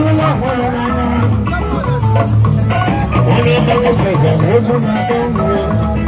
I'm Thank you.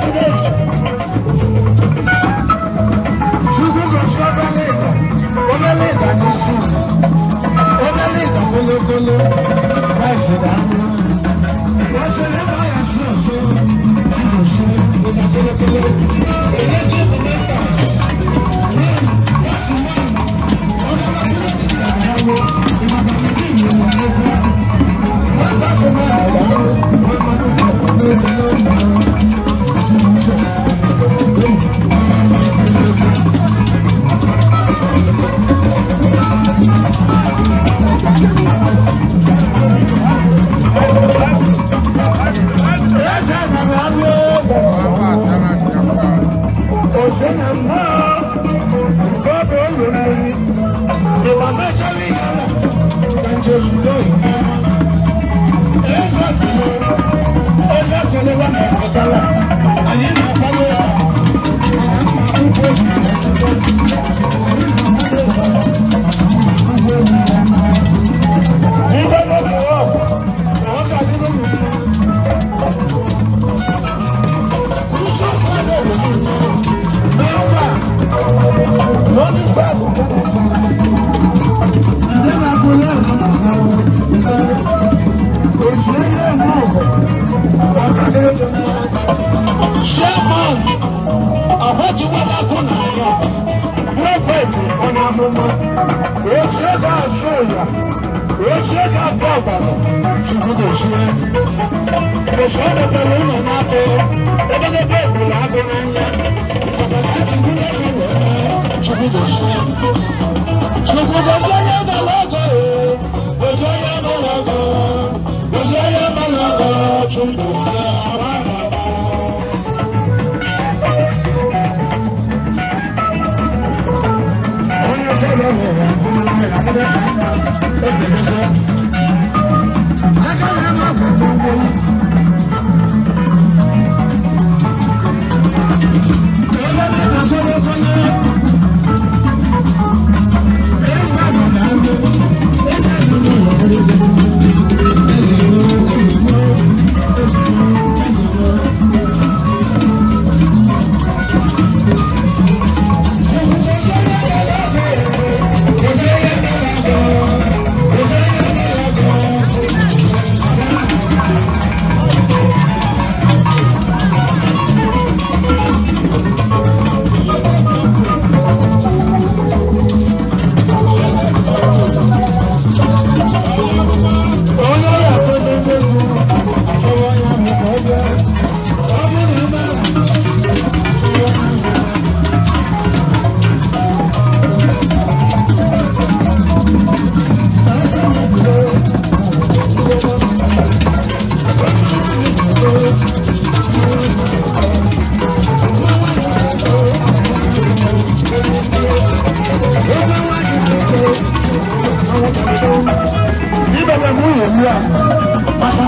Thank you. ọdọdọrọ ụlọ na-atọ ogologo ọbụla agụ n'anya maka chukwu na-enwe chukwu gosi chukwu gosi onye gbara ọgọ gosi onye gbara ọgọ gosi onye gbara ọgọ chukwu Thank you.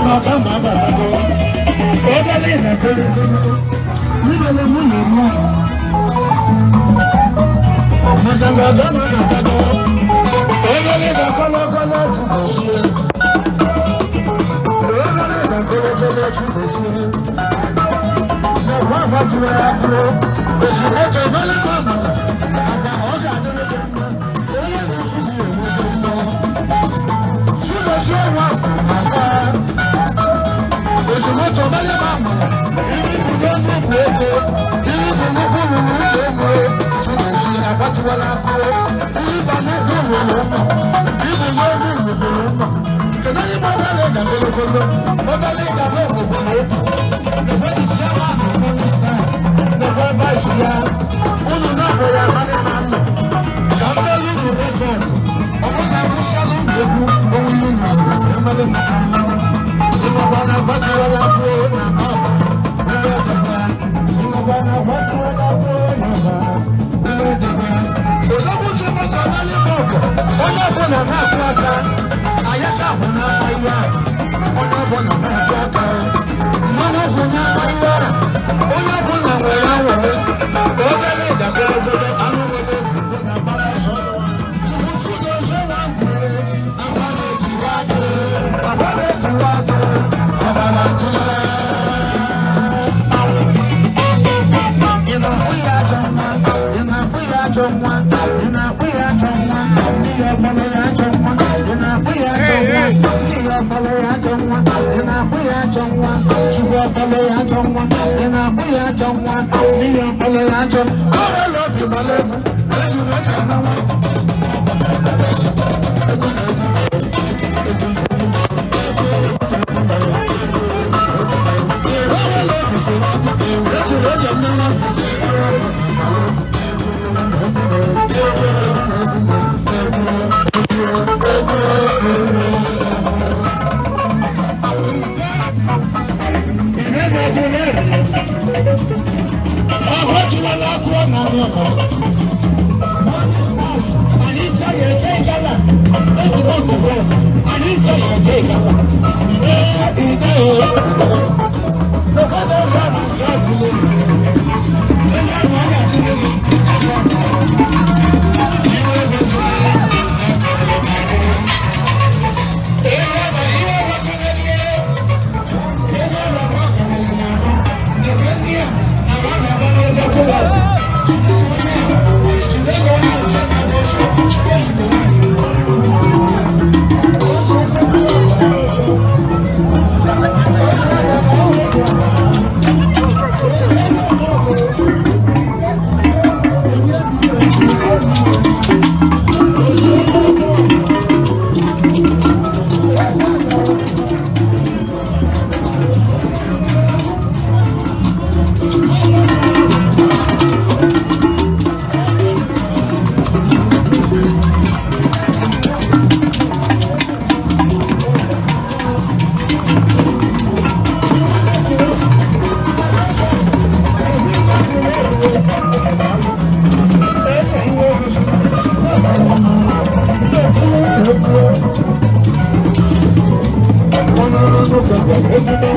lọ bá màá bàbá lọ ó délé ìrẹ̀kọ́ níbo lè mú yìí mú. Màdàgbà bá màá bàbá lọ ó délé ìrẹ̀kọ́ lọ́kọ́ láti bọ̀ sí ẹ. Ó délé ìrẹ̀kọ́ lọ́kọ́ láti bọ̀ sí ẹ. Ṣé wọ́n àbájúwe àbúrò? Òṣìlẹ̀ tó bá lè má bàbá. sọ̀bẹ́lẹ̀ máa mọ̀ ìlú ìbùdó ń dùn fún oko ìlú ìbùdó fún mi ní ìlú èmú e ṣùgbọ́n ìṣe àbátiwọlá kó ìlú ìbànú dùn mí ló ń mọ̀ ìbùdó ń dùn mí ló ń mọ̀ kẹ̀lé ní mo bá lè gàgbé lókòló mo bá lè gàgbé òkòkò ló ń mọ̀ kẹ̀lé ìṣẹ́ wà ní mínísítà lọ́wọ́ bá ṣe yá nwa ị na-akpụ ya ajọ nwa n'ihi ọbụla ya ajọ ọrịa obi gbara egwu ejuru aka na nwa Thank you.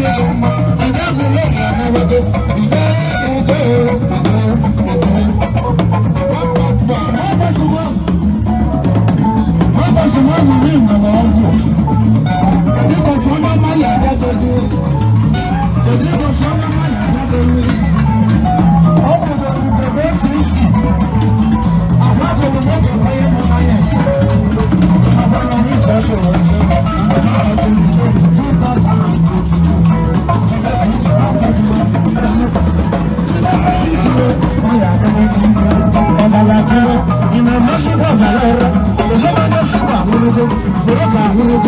Yeah. Guru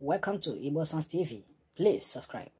Welcome to Igbo TV. Please subscribe.